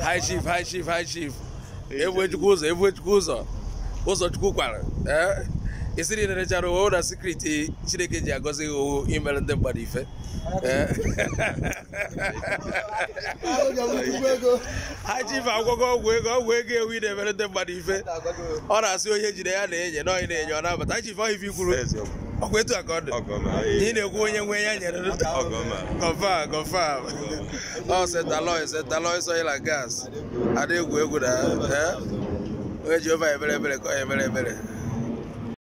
hi chief hi chief hi chief ebuechukwu ụzọ ụzọ ụzọchukwu kwara ee isiri nerechara ụwa na sikriti chineke ji agọzi gị owu imere ndị mmadụ ife high chief agwọgo ọgwụ ego ọgwụ ego ewu na-emere ndị mmadụ ife ọ na-asị onye jide ya na-enye na onye na-enye ọ nabata high ọkwa etu a ka ọ dị ị na-ekwu onye nwe ya nyere gọva gọva ọ setaloi setaloi soila gas ada egwu egwu na onye Jehova ebere ebere ka ọ ya ebere ebere